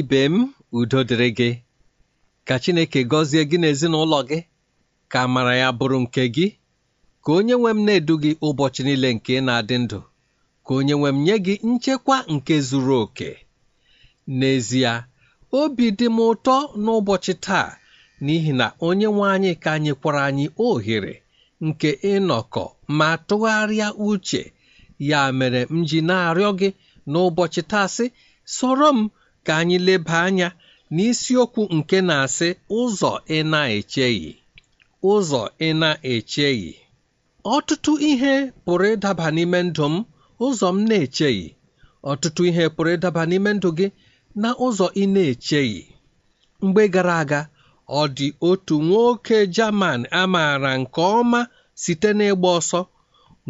ibe m udo dịrị gị ka Chineke gọzie gị n'ezinụlọ gị ka mara ya bụrụ nke gị ka onye nwe m na-edu gị ụbọchị niile nke ị na-adị ndụ ka onye nwe m nye gị nchekwa nke zuru oke n'ezie obi dị m ụtọ n'ụbọchị taa n'ihi na onye nwe anyị ka nyekwara anyị ohere nke ịnọkọ ma tụgharịa uche ya mere m ji na-arịọ gị n'ụbọchị taa sị soro m ka anyị leba anya n'isiokwu nke na-asị ụzọ ị na-echeghị ụzọ ị na-echeghị ọtụtụ ihe pụrụ ịdaba n'ime ndụ m ụzọ m na-echeghị ọtụtụ ihe pụrụ ịdaba n'ime ndụ gị na ụzọ ị na-echeghị mgbe gara aga ọ dị otu nwoke Jaman amaara nke ọma site n'ịgba ọsọ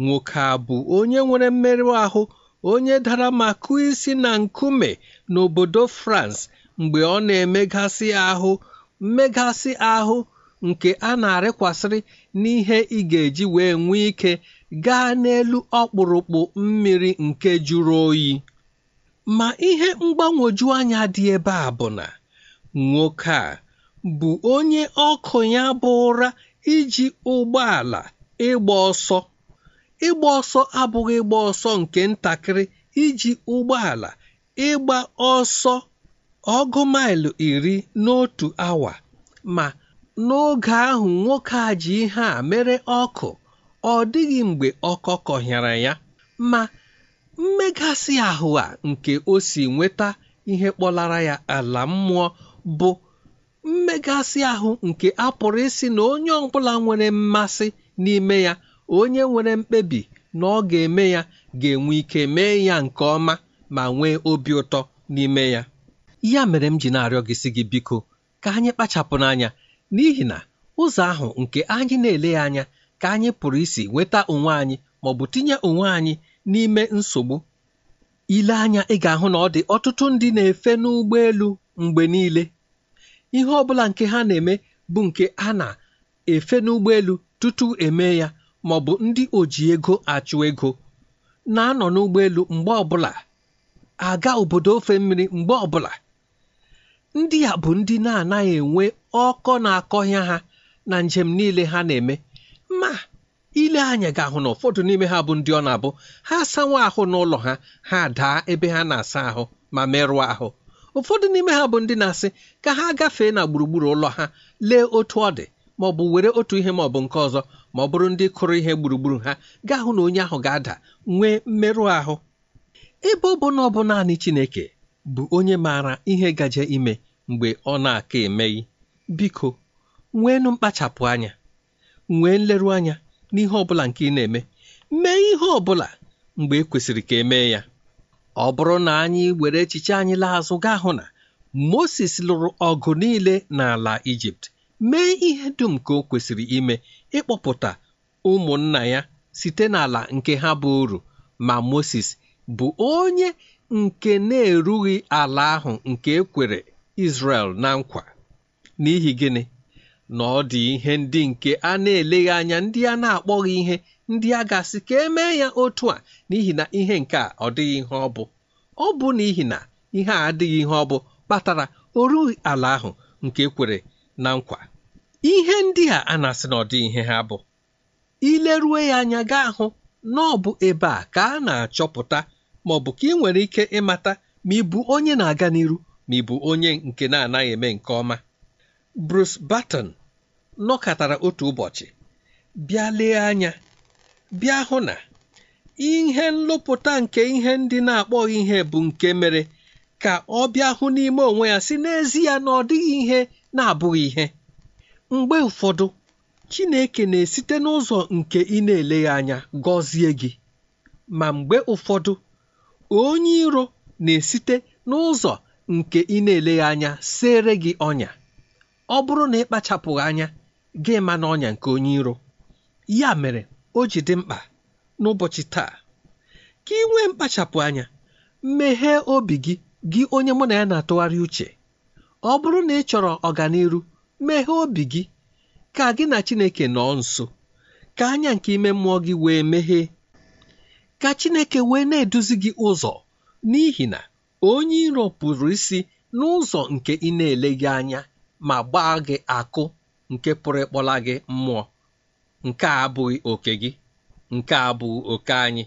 nwoke a bụ onye nwere mmerụ ahụ onye dara ma kụọ isi na nkume n'obodo France mgbe ọ na-emegasị ahụ mmegasị ahụ nke a na-arịkwasịrị n'ihe ị ga-eji wee nwee ike gaa n'elu ọkpụrụkpụ mmiri nke jụrụ oyi ma ihe mgbanwoju anya dị ebe a bụ na nwoke a bụ onye ọkụ ya bụ ụra iji ụgbọala ịgba ọsọ ịgba ọsọ abụghị ịgba ọsọ nke ntakịrị iji ụgbọala ịgba ọsọ ọgụ maịlụ iri n'otu awa ma n'oge ahụ nwoke a ji ihe a mere ọkụ ọ dịghị mgbe ọkọ kọhịara ya ma mmegasị ahụ a nke o si nweta ihe kpọlara ya ala mmụọ bụ mmegasị ahụ nke a pụrụ isi na onye ọbụla nwere mmasị n'ime ya onye nwere mkpebi na ọ ga-eme ya ga-enwe ike mee ya nke ọma ma nwee obi ụtọ n'ime ya ya mere m ji na-arịọ gị si gị biko ka anyị kpachapụ n'anya n'ihi na ụzọ ahụ nke anyị na-ele ya anya ka anyị pụrụ isi nweta onwe anyị ma ọ bụ tinye onwe anyị n'ime nsogbu ile anya ị ga-ahụ na ọ dị ọtụtụ ndị na-efe n'ụgbọelu mgbe niile ihe ọ bụla nke ha na-eme bụ nke a na-efe n'ụgbọelu tutu eme ya maọbụ ndị oji ego achụ ego na-anọ n'ụgbọelu mgbe ọbụla aga obodo ofe mmiri mgbe ọbụla ndị a bụ ndị na-anaghị enwe ọkọ na-akọhịa ha na njem niile ha na-eme ma ile anya ga-ahụ na ụfọdụ n'ime ha bụ ndị ọ na-abụ ha asanwa ahụ n'ụlọ ha ha daa ebe ha na-asa ahụ ma merụọ ahụ ụfọdụ n'ime ha bụ ndị na-asị ka ha gafee na gburugburu ụlọ ha lee otu ọ dị maọbụ were otu ihe maọbụ nke ọzọ ma ọ bụrụ ndị kụrụ ihe gburugburu ha gaa hụ na onye ahụ ga-ada nwee mmerụ ahụ ebe ọ bụ na ọ bụ naanị Chineke bụ onye maara ihe gaje ime mgbe ọ na-aka emeghị biko nweenụ mkpachapụ anya nwee nleru anya n'ihe ọ bụla nke ị na-eme mee ihe ọ bụla mgbe e kwesịrị ka emee ya ọ bụrụ na anyị were echiche anyị laa azụ gaa hụ na Moses lụrụ ọgụ niile n'ala Ijipt mee ihe dum ka o kwesịrị ime ịkpọpụta ụmụnna ya site n'ala nke ha bụ uru ma Moses bụ onye nke na-erughị ala ahụ nke ekwere Israel na nkwa n'ihi gịnị na ọ dị ihe ndị nke a na-eleghị anya ndị a na-akpọghị ihe ndị a gasị ka emee ya otu a n'ihi na ihe nke a ọ dịghị ihe ọ bụ ọ bụ n'ihi na ihe a adịghị ihe ọ bụ kpatara o ala ahụ nke ekwere na nkwa ihe ndị a a na-asị na ọdị ihe ha bụ ilerue ya anya gaa hụ na ọ bụ ebe a ka a na-achọpụta ma ọ bụ ka ị nwere ike ịmata ma ị bụ onye na-aga n'iru ma ị bụ onye nke na-anaghị eme nke ọma Bruce Batten, nọkọtara otu ụbọchị bịa lee anya bịa hụ na ihe nlụpụta nke ihe ndị na-akpọghị ihe bụ nke mere ka ọ bịa hụ n'ime onwe ya si n'ezie na ọ dịghị ihe na-abụghị ihe mgbe ụfọdụ chineke na-esite n'ụzọ nke ị na-eleghị anya gọzie gị ma mgbe ụfọdụ onye iro na-esite n'ụzọ nke ị na-eleghị anya sere gị ọnya ọ bụrụ na ị kpachapụghị anya gị ma na ọnya nke onye iro ya mere o ji dị mkpa n'ụbọchị taa ka ị nwee mkpachapụ anya meghee obi gị gị onye mụ na ya na-atụgharị uche ọ bụrụ na ị chọrọ ọganiru meghee obi gị ka gị na chineke nọọ nso ka anya nke ime mmụọ gị wee meghee ka chineke wee na-eduzi gị ụzọ n'ihi na onye iro pụrụ isi n'ụzọ nke ị na-eleghị anya ma gbaa gị akụ nke pụrụ ịkpọla gị mmụọ nke a abụghị oke gị nke a abụghị oke anyị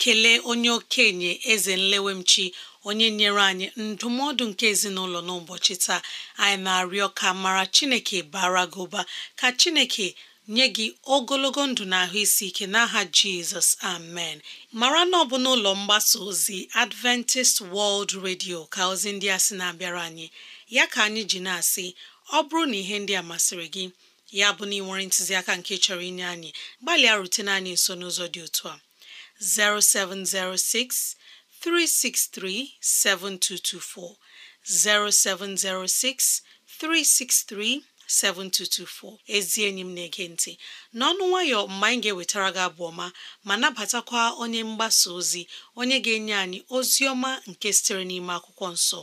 kelee ekele onye okenye eze nlewemchi onye nyere anyị ndụmọdụ nke ezinụlọ n'ụbọchị taa anyị na-arịọ ka mara chineke bara gị ụba ka chineke nye gị ogologo ndụ na ahụ isi ike n'aha jizọs amen mara na ọ bụ n'ụlọ mgbasa ozi adventist world radio ka ozi ndị a sị na-abịara anyị ya ka anyị ji na-asị ọ bụrụ na ihe ndị a masịrị gị ya bụ na ị nwere ntụziaka nke chọrọ inye anyị gbalịa rutene anyị nso n'ụzọ dị otu a 0706 363 7224 0706 363 7224 ezi enyi Nti: na-ege ntị n'ọnụ nwayọ mgbe ga-ewetara gị abụ ọma ma nabatakwa onye mgbasa ozi onye ga-enye anyị ozi ọma nke sitere n'ime akwụkwọ nso.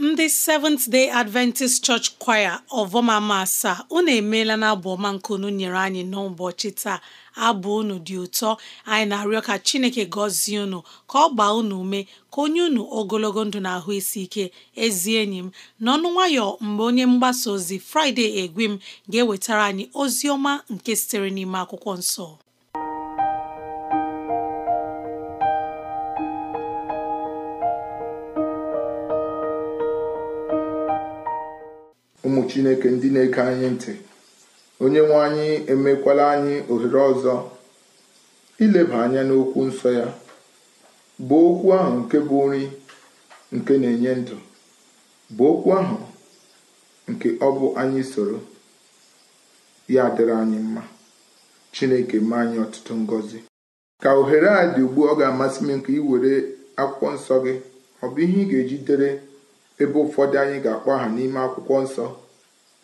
ndị Seventh Day Adventist Church Choir ọvọmama asaa unu emeela na abụ ọma nke unu nyere anyị n'ụbọchị taa abụ unu dị ụtọ anyị na-arịọ ka Chineke gọzie unu ka ọ gbaa unu ume ka onye unu ogologo ndụ na ahụ isi ike ezi enyi m n'ọnụ nwayọ mgbe onye mgbasa ozi Friday egwe m ga-ewetara anyị ozi ọma nke sitere n'ime akwụkwọ nsọ chineke ndị na-ege anyị ntị onye nwe anyị emekwala anyị ohere ọzọ ileba anya n'okwu nsọ ya bụ okwu ahụ nke bụ nri nke na-enye ndụ bụ okwu ahụ nke ọ bụ anyị soro ya dịrị anyị mma chineke mee anyị ọtụtụ ngọzi ka ohere a dị ugbu ọ ga-amasị m nke ị were akwụkwọ nsọ gị ọ bụ ihe ị ga-eji dere ebe ụfọdụ anyị ga-akpọ aha n'ime akwụkwọ nsọ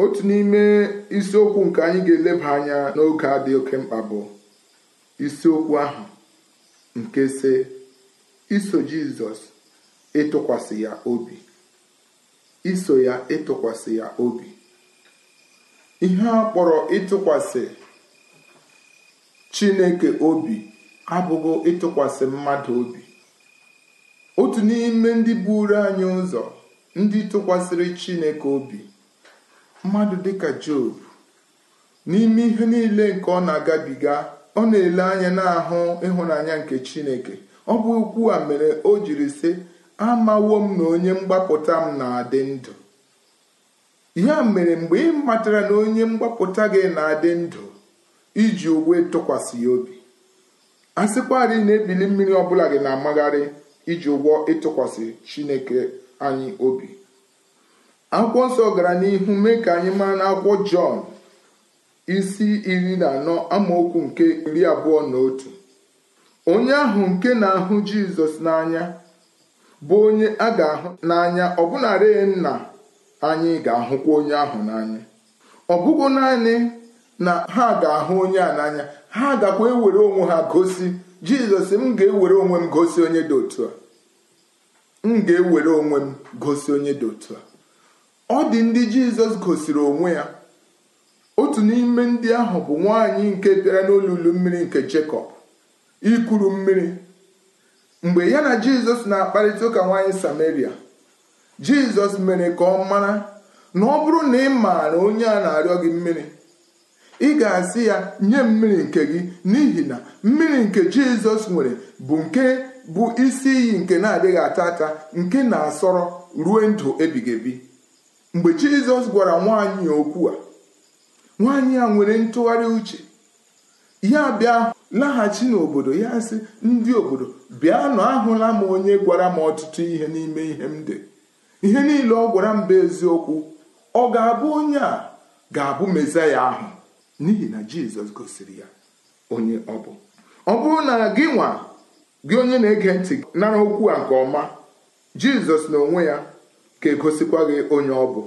otu n'ime isiokwu nke anyị ga-eleba anya n'oge a dị oke mkpa bụ isiokwu ahụ nke si iso jizọs ịtụkwasị ya obi iso ya ịtụkwasị ya obi ihe a kpọrọ ịtụkwasị chineke obi abụghị ịtụkwasị mmadụ obi otu n'ime ndị buru anyị ụzọ ndị tụkwasịrị chineke obi mmadụ dịka Job n'ime ihe niile nke ọ na-agabiga ọ na-ele anya n'ahụ ịhụnanya nke Chineke ọ bụ ukwu a mere o jiri sị amawo m na onye mgbapụta m na-adị ndụ ya mere mgbe ị matara na onye mgbapụta gị na-adị ndụ iji ụgwọ tụkwasị ya obi a sịkwarị na ebili mmiri ọbụla gị na-amagharị iji ụgwọ ịtụkwasị Chineke anyị obi akwụkwọ nsọ gara n'ihu mee ka anyị mara n'akwụkwọ jọn isi iri na anọ amaokwu nke iri abụọ na otu onye ahụ nke na-ahụ jizọs n'anya bụ onye a ga-ahụ n'anya nna anyị ga-ahụkwa onye ahụ n'anya ọ bụghị naanị na ha ga-ahụ onye a n'anya ha gakwa ewere onwe ha gosi jizọs m ga-ewere onwe m gosi onye dị otu a m ga-ewere onwe m gosi onye dị otu a ọ dị ndị jizọs gosiri onwe ya otu n'ime ndị ahụ bụ nwaanyị nke bịara n'olulu mmiri nke jekọb ikuru mmiri mgbe ya na jizọs na-akparịta ụka nwaanyị samaria jizọs mere ka ọ mara na ọ bụrụ na ị maara onye a na-arịọ gị mmiri ị ga-asị ya nye mmiri nke gị n'ihi na mmiri nke jizọs nwere bụ nke bụ isi iyi nke na-adịghị ata ata nke na-asọrọ ruo ndụ ebighị ebi mgbe jizọs gwara nwaanyị okwu a nwaanyị a nwere ntụgharị uche ya bịa laghachi n'obodo ya sị ndị obodo bịa bịanụ ahụla m onye gwara m ọtụtụ ihe n'ime ihe m dị ihe niile ọ gwara m bụ eziokwu ọ ga-abụ onye a ga-abụ mezaya ahụ n'ihi na jizọs gosiri ya onye ọ bụ ọ bụrụ na gị nwa gị onye na-ege ntị nara okwu a nke ọma jizọs na onwe ya ga-egosikwa gị onye ọ bụ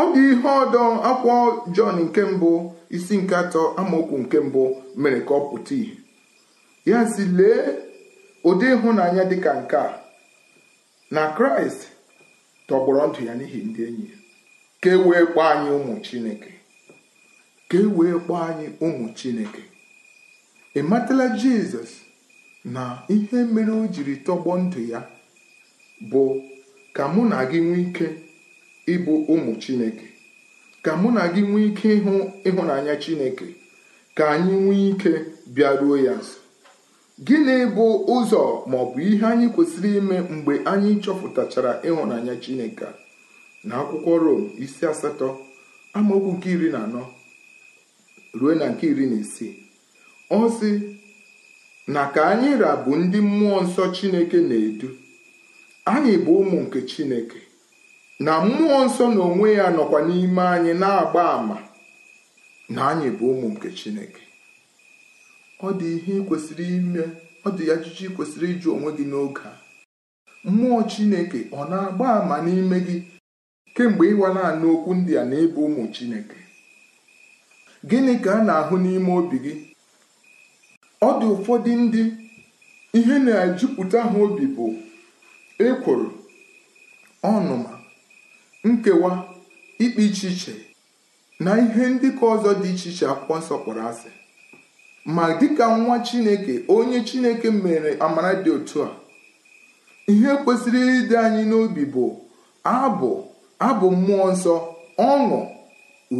ọ dị ihe ọdọ akwụkwọ Jọn nke mbụ isi nke atọ amaokwu nke mbụ mere ka ọ pụta ìhè ya si lee ụdị ịhụnanya dịka nke a na kraịst tọgbọrọ ndụ ya n'ihi ndị enyi ka e wee kpọọ anyị ụmụ chineke ka e wee kpọọ anyị ụmụ chineke matala jizọs na ihe mere o jiri tọgbọ ndụ ya bụ ka mụ na gị nwee ike ịbụ ụmụ Chineke ka mụ na gị nwee ike ịhụ ịhụnanya Chineke ka anyị nwee ike bịaruo ya nso gịnị bụ ụzọ ma bụ ihe anyị kwesịrị ime mgbe anyị chọpụtachara ịhụnanya Chineke na akwụkwọ Rom isi asatọ amaokwu nke iri na anọ ruo na nke iri na isii ọ sị na ka anyị rabụ ndị mmụọ nsọ Chineke na-edu anyị bụ ụmụ nke Chineke na mmụọ nsọ na onwe ya nọkwa n'ime anyị na-agba àmà na anyị bụ ụmụ nke Chineke ọ dị ihe kwesịrị ime ọ dị ajụjụ kwesịrị ịjụ onwe gị n'oge a mmụọ Chineke ọ na-agba àmà n'ime gị kemgbe ịwa naanị okwu ndị a na ịbụ ụmụ Chineke gịnị ka a na-ahụ n'ime obi gị ọ dị ụfọdụ ndị ihe na-ejupụta ha obi bụ ekworo ọnụma nkewa ikpe iche iche na ihe ndị ka ọzọ dị iche iche akwụkwọ nsọ kpọrọ asị ma dịka nwa chineke onye chineke mere amara dị otu a ihe kwesịrị ịdị anyị n'obi bụ abụ abụ mmụọ nsọ ọṅụ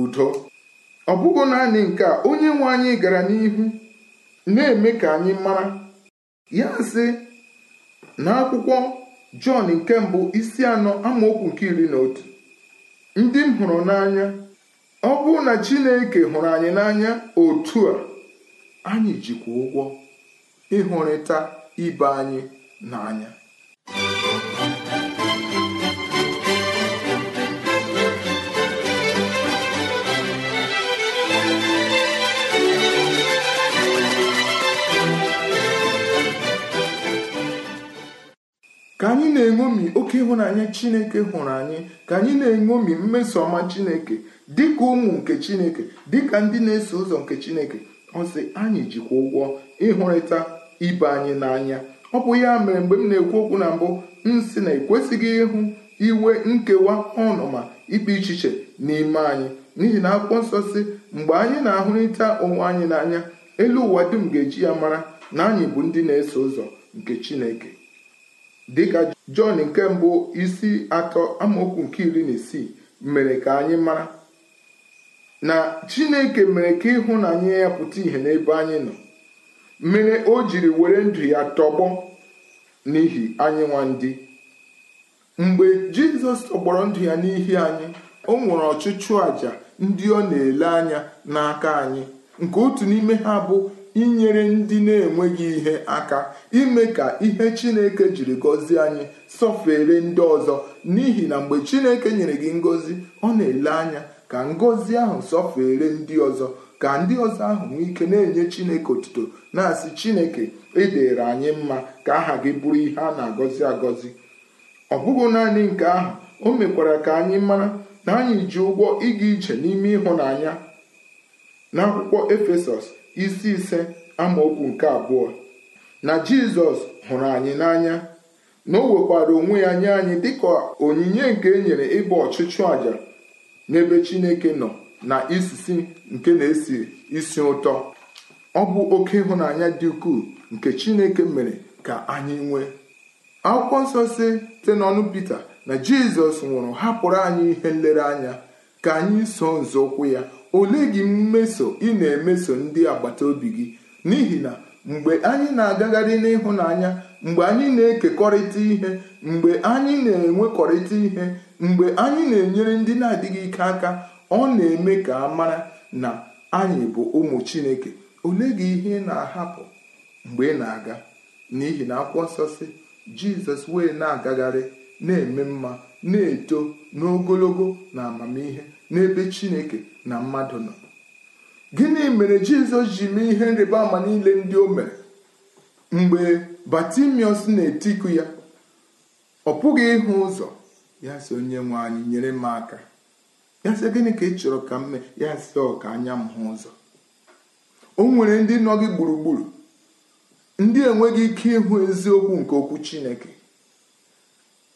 udo ọ bụghị naanị nke a onye nwe anyị gara n'ihu na-eme ka anyị mara ya sị na akwụkwọ Jọn nke mbụ isi anọ amaokwu nke iri na otu ndị m hụrụ n'anya ọ bụrụ na Chineke hụrụ anyị n'anya otu a anyị jikwa ụgwọ ịhụrịta ibe anyị n'anya ka anyị na-eṅomi oke ịhụnanya chineke hụrụ anyị ka anyị na-eṅomi mmeso ọma chineke dịka ụmụ nke chineke dịka ndị na-eso ụzọ nke chineke ọsị anyị jikwa ụgwọ ịhụrịta ibe anyị n'anya ọ bụ ya mere mgbe m na-ekwu okwu na mbụ m sị na ekwesịghị ịhụ iwe nkewa ọnụma ikpe ichiche n'ime anyị n'ihi na akpụkpọ nsọ si mgbe anyị na-ahụrịta onwe anyị n'anya elu ụwa dum ga-eji ya mara na anyị bụ ndị na-eso ụzọ nke chineke dịka Jọn nke mbụ isi atọ amaokwu nke iri na isii mere ka anyị mara na Chineke mere ka ịhụnanya ya pụta ìhè n'ebe anyị nọ mere o jiri were ndụ ya tọgbọ n'ihi anyị nwa ndị mgbe Jizọs tọgbọrọ ndụ ya n'ihi anyị o nwere ọchịchụ àjà ndị ọ na-ele anya n'aka anyị nke otu n'ime ha bụ inyere ndị na-enweghị ihe aka ime ka ihe Chineke jiri gọzie anyị sọfere ndị ọzọ n'ihi na mgbe Chineke nyere gị ngọzi ọ na-ele anya ka ngọzi ahụ sọfere ndị ọzọ ka ndị ọzọ ahụ nwee ike na-enye Chineke otuto na-asị Chineke edere anyị mma ka aha gị bụrụ ihe a na-agọzi agọzi ọ bụghị naanị nke ahụ o mekwara ka anyị mara na anyị ji ụgwọ ịga ije n'ime ịhụnanya n'akwụkwọ Efesọs isi ise amaokwu nke abụọ na Jizọs hụrụ anyị n'anya na o nwekwara onwe ya nye anyị dịka onyinye nke e nyere ịbụ ọchụchụ àjà n'ebe Chineke nọ na isisi nke na-esi isi ụtọ ọ bụ oke ịhụnanya dị ukwuu nke Chineke mere ka anyị nwee akwụkwọ nsọ si site n'ọnụ Pita na Jizọs nwụrụ hapụrụ anyị ihe nlereanya ka anyị so nzọụkwụ ya ole gị mmeso ị na-emeso ndị agbata obi gị n'ihi na mgbe anyị na-agagharị n'ịhụnanya mgbe anyị na-ekekọrịta ihe mgbe anyị na-enwekọrịta ihe mgbe anyị na-enyere ndị na-adịghị ike aka ọ na-eme ka a mara na anyị bụ ụmụ chineke ole gị ihe na-ahapụ mgbe ị na-aga n'ihi na akwụkwọ nsọ si jizọs wee na-agagharị na-eme mma na-eto n'ogologo na amamihe n'ebe chineke na mmadụ nọ gịnị mere jizọs ji mee ihe nrịba ama niile ndị o mere mgbe batimiọs na-etiku ya ọ pụghị ịhụ ụzọ ya sị onye nwe anyị nyere m aka ya sị gịnị ka ị chọrọ ka m mee ya sị ọ ka anya m hụ ụzọ o nwere ndị nọ gị gburugburu ndị enweghị ike ịhụ eziokwu nke okwu chineke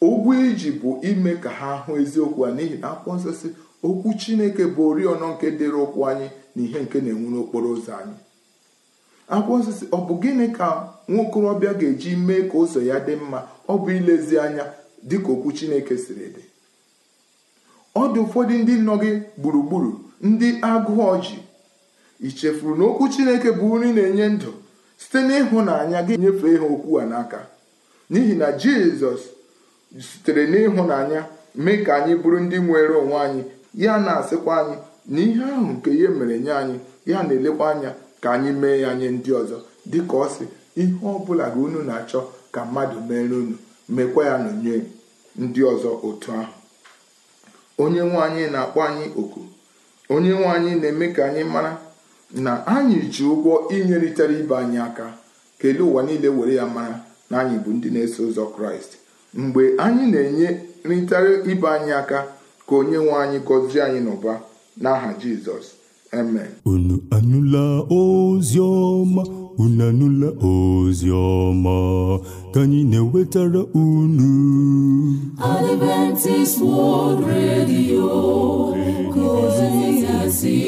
ụgwọ iji bụ ime ka ha hụ eziokwu a n'ihi na akwụkwọ nsọ si okwu chineke bụ oriọna nke dịrị ụkwụ anyị na ihe nke na-enwu n'okporo ụzọ anyị akwụkwọ osisi ọ bụ gịnị ka okorobịa ga-eji mee ka ụzọ ya dị mma ọ bụ ilezi anya ka okwu chineke siri dị ọ dị ụfọdụ ndị nọ gị gburugburu ndị agụ ji ị chefuru na okwu chineke bụ nri na-enye ndụ site n'ịhụnanya gị nyefee ha okwu a n'aka n'ihi na jizọs sitere n'ịhụnanya mee ka anyị bụrụ ndị nwere onwe anyị ya na-asịkwa anyị na ihe ahụ nke ihe mere nye anyị ya na-elekwa anya ka anyị mee ya nye ndị ọzọ dịka ọ sị ihe ọ bụla ga unu na-achọ ka mmadụ mere unu mekwa ya n'onye ndị ọzọ otu ahụ onye nwe anyị na-akpọ anyị oku onye nwe anyị na-eme ka anyị mara na anyị ji ụgwọ inyerịtara ibe anyị aka kelee ụwa niile were ya mara na anyị bụ ndị na-eso ụzọ kraịst mgbe anyị na-enye nrịtara ibe anyị aka ka onye nwe anyị gọzie anyị n'ụba n'aha jizọs eme. unu anụla ozi ọma unu anụla ozi ọma ka anyị na-ewetara unu Adventist World Radio ka ozi ya si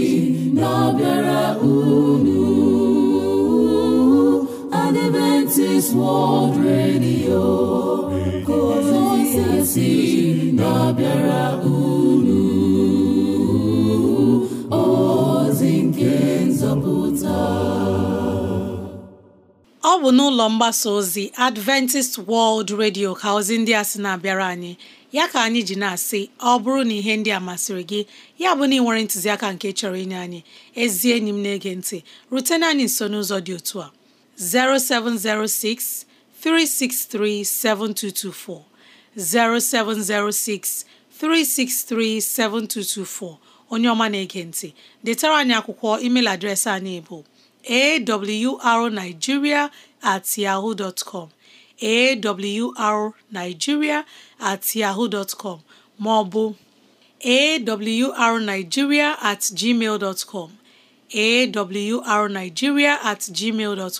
unu Adventist World Radio ka ozi ya si unu ọ bụ n'ụlọ mgbasa ozi Adventist World Radio ka ozi ndị a sị na-abịara anyị ya ka anyị ji na-asị ọ bụrụ na ihe ndị a masịrị gị ya bụ na ị nwere ntụziaka nke chọrọ inye anyị ezi enyi m na-ege ntị rutena anyị nso n'ụzọ dị otu a 0706 363 7224 0706 363 7224 onye ọma na-ege ntị detara anyị akwụkwọ email adreesị anyị bụ awrnigeria at yahoo dot com at yahoo dot com maọbụ awrnigeria at gmail dot com at gmail dot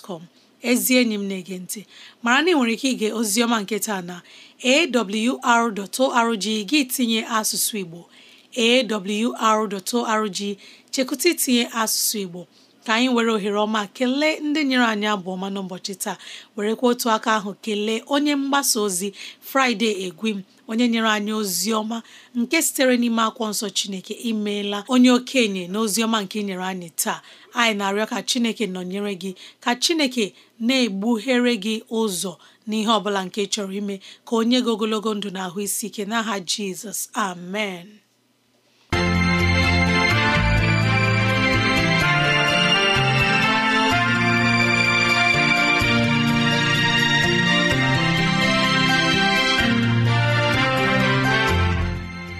ezi enyi m na-ege ntị mara na ị nwere ike ige ozioma nke taa na awr.org gị tinye asụsụ Igbo awr.org chekụta itinye asụsụ Igbo ka anyị were ohere ọma kelee ndị nyere anyị abụ ọma n'ụbọchị taa were werekwa otu aka ahụ kelee onye mgbasa ozi Fraịde Egwim onye nyere anyị ozi ọma nke sitere n'ime akwụkwọ nsọ Chineke imeela onye okenye na ozi ọma nke nyere anyị taa anyị na-arịọ ka Chineke nọnyere gị ka Chineke na-egbughere gị ụzọ n'ihe ọ bụla nke chọrọ ime ka onye gị ogologo ndụ na ahụ isi ike n'aha Jizọs amen